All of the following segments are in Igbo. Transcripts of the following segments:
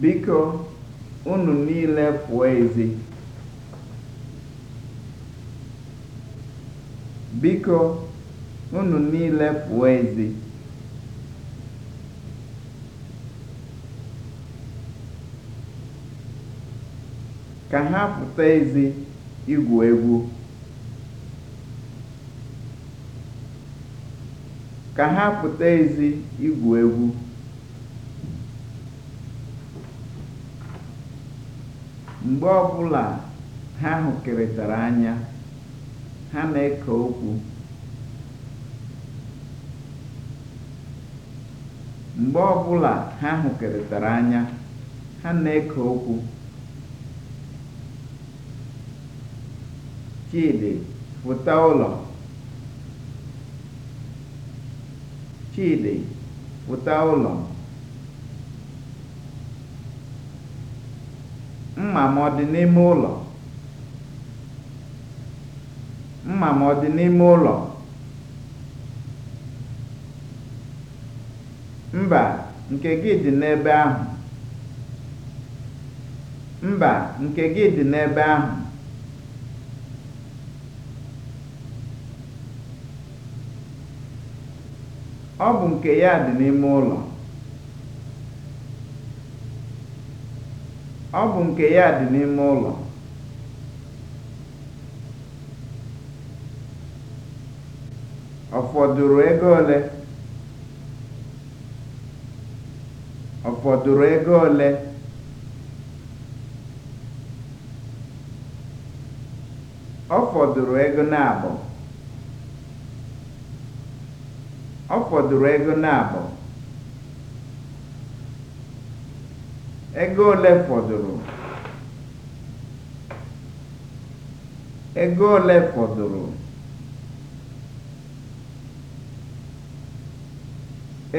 Biko, unu niile pụọ ezi. Ka ha pụta ezi igwu Ka ha pụta ezi igwu egwu. Mgbe ọbụla ha hụkọrịtara anya, ha na-eke okwu. Mgbe anya, ha na-eke okwu. pụta ụlọ. mma m ọ dị n'ime ụlọ? mma m ọ dị n'ime ụlọ? mba, nke gị dị n'ebe ahụ. mba, nke gị dị n'ebe ahụ. ọ bụ nke ya dị n'ime ụlọ. Ọ bụ nke ya dị n'ime ụlọ. Ọ fọdụrụ ego ole? Ọ fọdụrụ ego ole? Ọ fọdụrụ ego Ọ fọdụrụ ego ego ole fọdụrụ ego ole fọdụrụ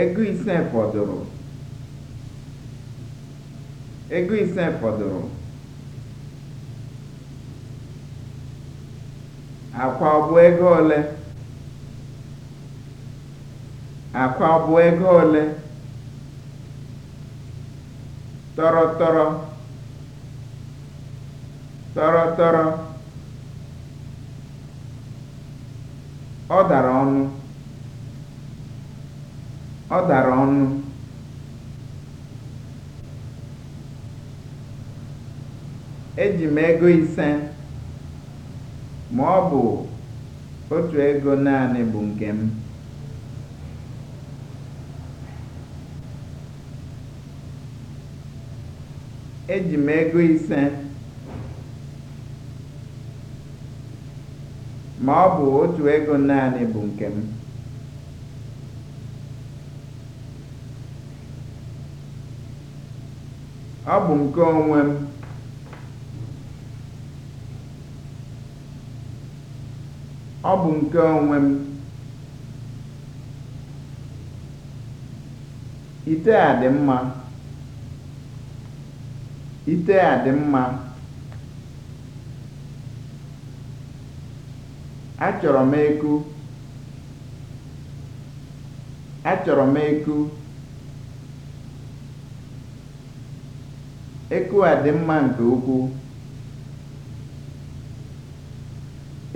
ego ise fọdụrụ ego ise fọdụrụ akwa ọ bụ ego ole akwa ọ bụ ego ole tọrọtọrọ tọrọtọrọ ọ dara ọnụ ọ dara ọnụ eji m ego ise ma ọ bụ otu ego naanị bụ nke m eji m ego ise ma ọ bụ otu ego naanị bụ nke m ọ bụ nke onwe m ọ bụ nke onwe m ite a dị mma Ite a dị mma. Achọrọ m eku. Achọrọ m eku. Eku a dị mma nke ukwuu.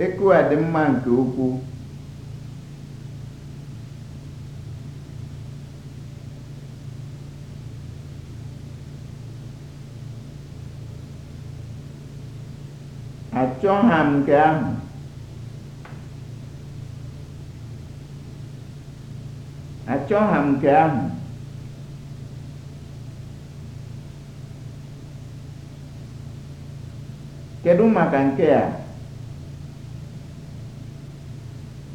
Eku a dị mma nke ukwuu. cho hành nke ahụ. kedu maka nke a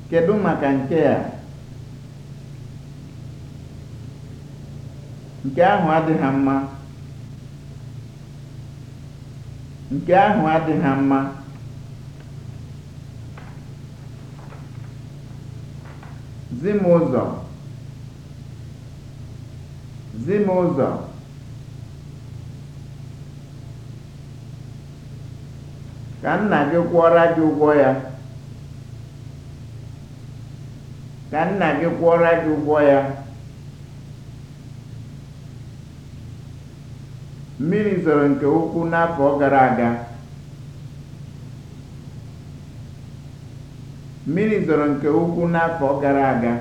nke ahụ adịghị mma nke ahụ adịghị mma zi m ka nna gị kwụọra gị ụgwọ ya ka nna gị kwụọra gị ụgwọ ya mmiri zoro nke ukwuu n'afọ gara aga Mmiri zoro nke ukwu n'afọ gara aga.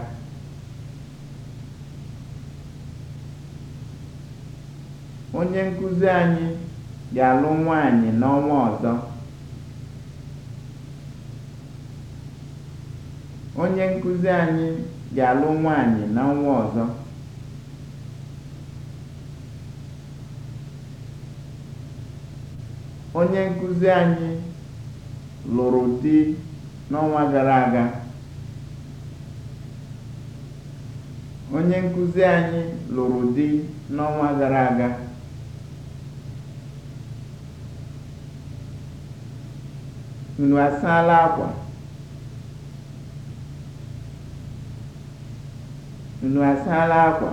Onye nkụzi anyị ga-alụ nwaanyị n'ọnwa ọzọ. Onye nkuzi anyị ga-alụ nwaanyị n'ọnwa ọzọ. Onye nkụzi anyị lụrụ di. n'ọnwa gara aga. Onye nkụzi anyị lụrụ di n'ọnwa gara aga. Unu asaala akwa? Unu asaala akwa?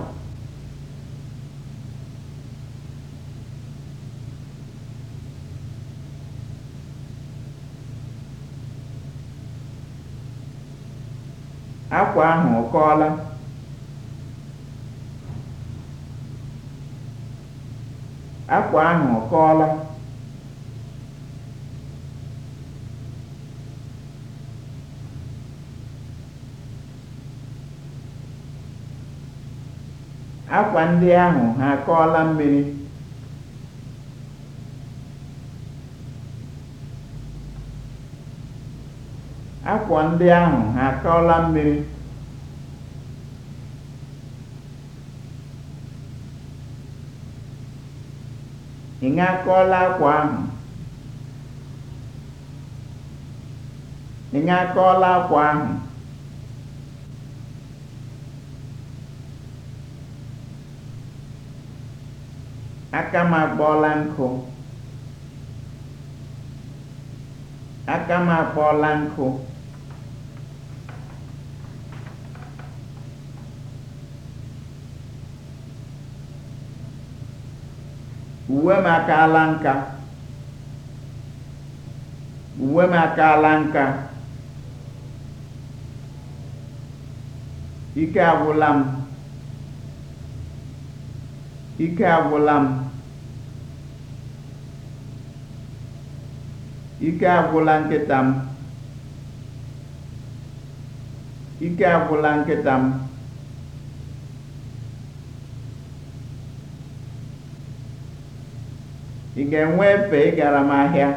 Akwa ahụ ọ kọọla? Akwa Akwa ndị ahụ ha akọọla mmiri? Akwa ndị ahụ ha akọọla mmiri? Ị ṅakọọla akwa ahụ? Ị akwa ahụ? Aka m akpọọla nkụ. Aka m akpọọla nkụ. uwe m akaala nka uwe m akaala nka ike agwụla m ike agwụla nkịta m ike agwụla nkịta m ị ga-enwe efe ịgara m ahịa?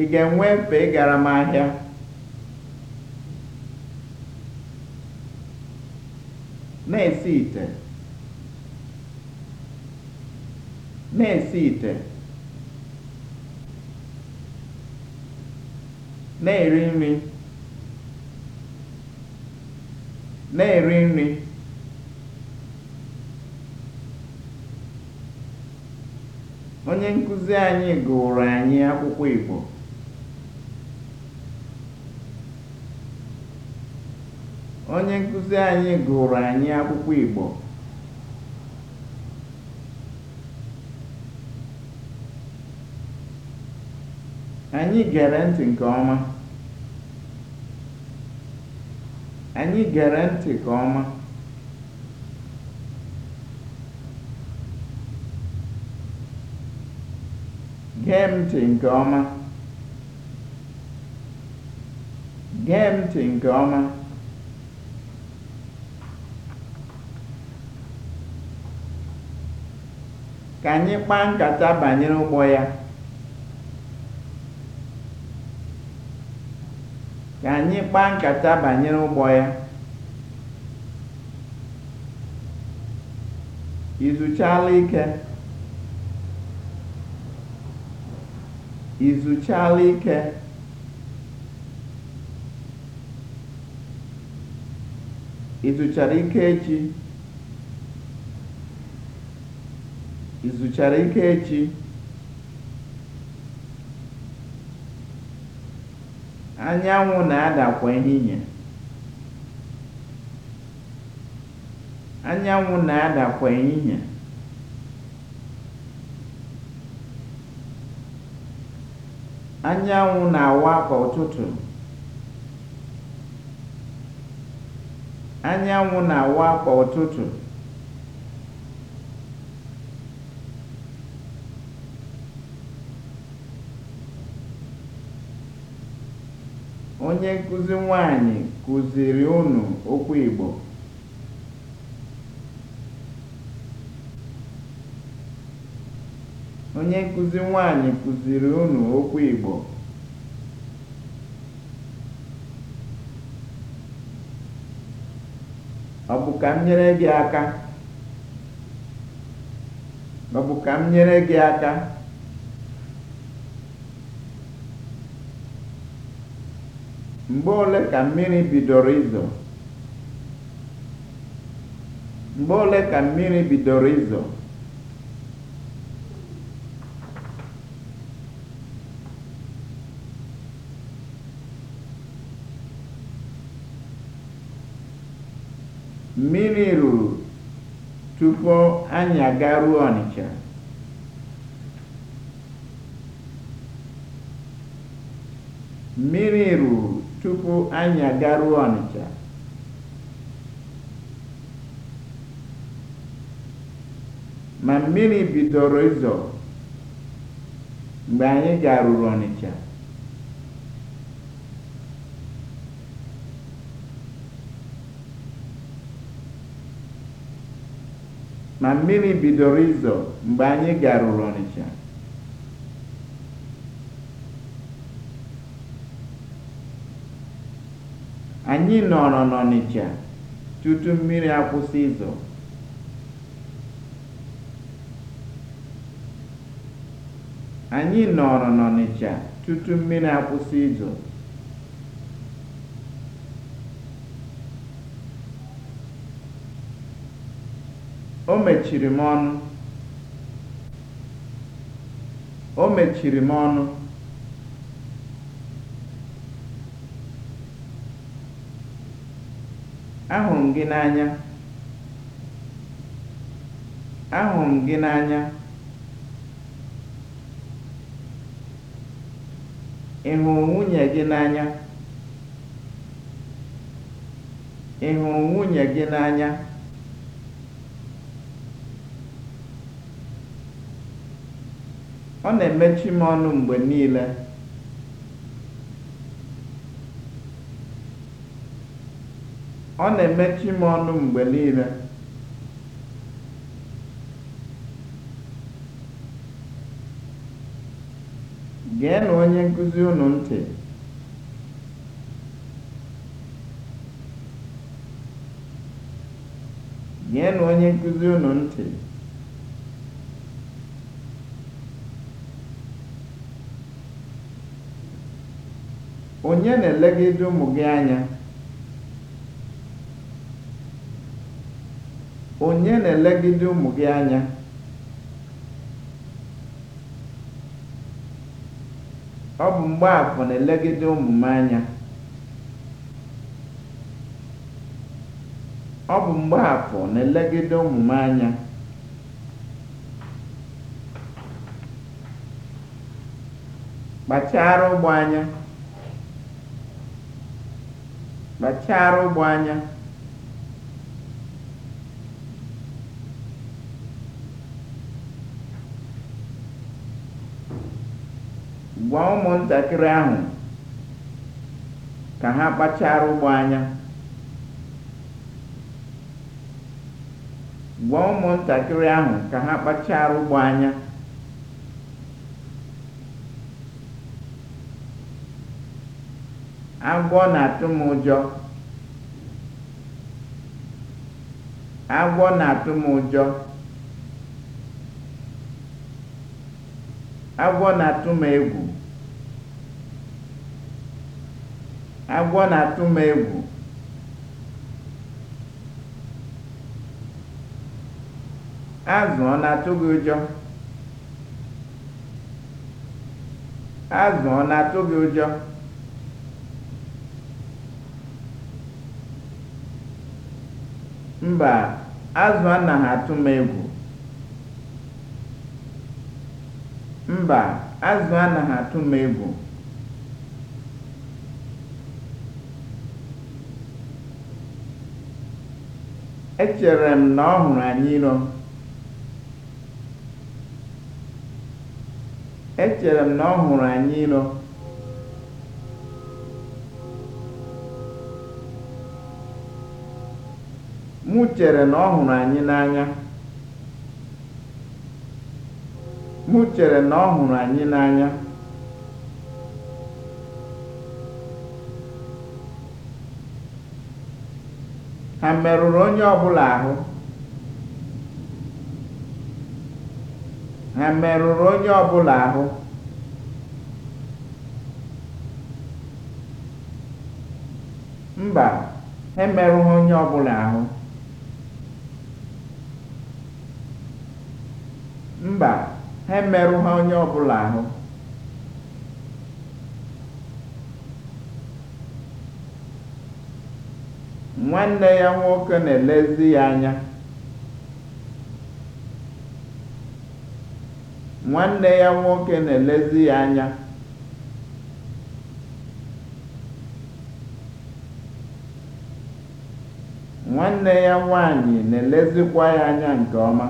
ị ga-enwe efe ịgara m ahịa? na-esi ite na-esi ite na-eri nri na-eri nri Onye nkuzi anyị gụụrụ anyị akwụkwọ Igbo. anyị akwụkwọ Igbo. Anyị gere Anyị gere ntị nke ọma. Gee ntị nke ọma. Gee ntị nke ọma. Ka anyị kpaa nkata banyere ụgbọ ya. Ka anyị kpaa nkata banyere ụgbọ ya. Ị ike? I ike? Ị ike echi? Ị ike echi? Anyanwụ na adakwa ehihie. Anyanwụ na-ada ehihie. Anyanwụ na-awa kwa ụtụtụ. na-awa kwa ụtụtụ. Onye nkụzi nwanyị kụziiri ụnụ okwu Igbo. Onye nkụzi nwanyị kụziri unu okwu Igbo? Ọ bụ ka m nyere gị aka? Ọ bụ ka m nyere gị aka? Mgbe ole ka mmiri bidoro izo? Mgbe ole ka mmiri bidoro izo? Mmiri ruru tupu anyị agaruo Ọnịcha. Mmiri Ma mmiri bidoro ịzọ mgbe anyị garuru Ọnịcha. ma mmiri bidoro izo mgbe anyị garuru Ọnịcha. Anyị nọrọ n'Ọnịcha tutu mmiri akwụsị izo. Anyị nọrọ n'Ọnịcha tutu mmiri akwụsị izo. O mechiri m ọnụ. O mechiri m ọnụ. Ahụrụ m gị n'anya. Ahụrụ gị n'anya? Ị hụrụ nwunye gị n'anya? Ọ na-emechi m ọnụ mgbe niile. Ọ na-emechi m onye nkụzi unu ntị. ntị. Onye na-elegide ụmụ gị anya? Onye Ọ bụ Mgbaafọ na-elegide ụmụ m anya. Ọ bụ Mgbaafọ ụmụ m anya. Kpachara ụgbọ anya. Kpachaara ụgbọ anya. Gwa ụmụntakịrị ahụ ka ha kpachaara ụgbọ ahụ ka ha kpachara ụgbọ anya. Agwọ na-atụ m ụjọ. Agwọ na-atụ m ụjọ. Agwọ na-atụ m egwu. Agwọ na-atụ m egwu. Azụ ọ na-atụ gị ụjọ? Azụ ọ na-atụ gị ụjọ? Mba, azụ anaghị atụ m egwu. Mba, azụ m egwu. Echere m na ọ hụrụ anyịrọ. Echere m chere na ọ hụrụ anyị n'anya m chere na ọ hụrụ anyị n'anya ha merụrụ onye ọbụla ahụ ha merụrụ onye ọbụla ahụ mba ha emerụghị onye ọbụla ahụ Mba, ha ha onye ọbụla ahụ. Nwanne ya nwoke na-elezi ya anya. Nwanne ya nwoke na-elezi ya anya. Nwanne ya nwaanyị na-elezikwa ya anya nke ọma.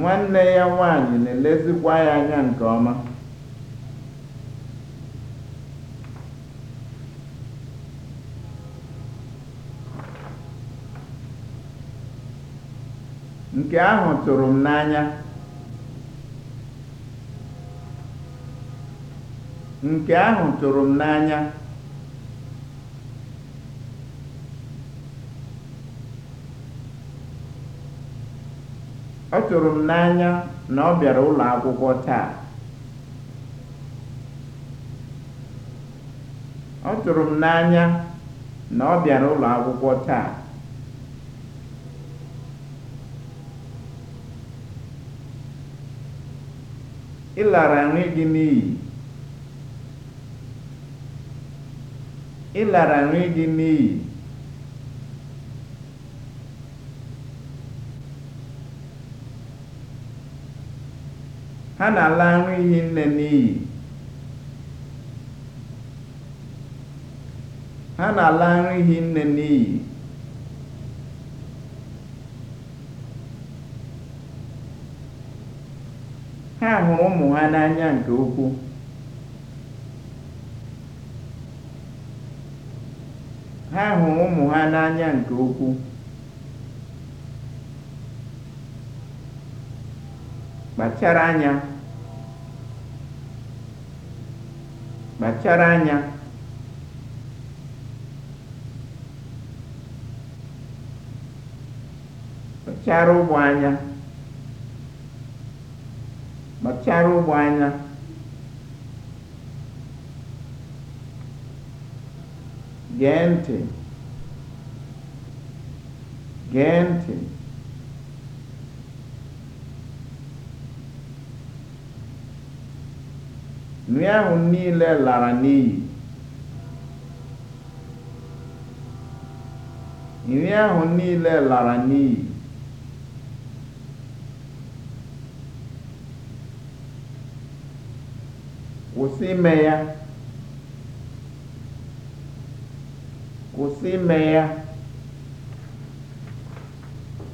Nwanne ya nwaanyị na-elezikwa ya anya nke ọma. Nke ahụ tụrụ m n'anya. Nke ahụ tụrụ m n'anya. Ọ tụrụ m n'anya na ọ bịara ụlọ akwụkwọ taa. na ọ bịara ụlọ akwụkwọ taa. Ị lara nri gị n'iyi. nri gị n'iyi. ha na-ala nri ihi nne n'iyi ha na hụrụ ụmụ ha n'anya nke ukwuu nke ukwuu kpachara anya kpachara anya kpachara ụgbọ anya kpachara ụgbọ anya gee ntị gee ntị nri ahụ niile lara n'iyi nri kwụsị ime kwụsị ime ya